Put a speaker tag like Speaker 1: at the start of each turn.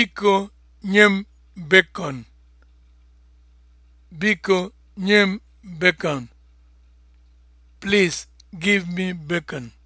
Speaker 1: Biko nye m bacon. Biko nye m bacon. Please give me bacon.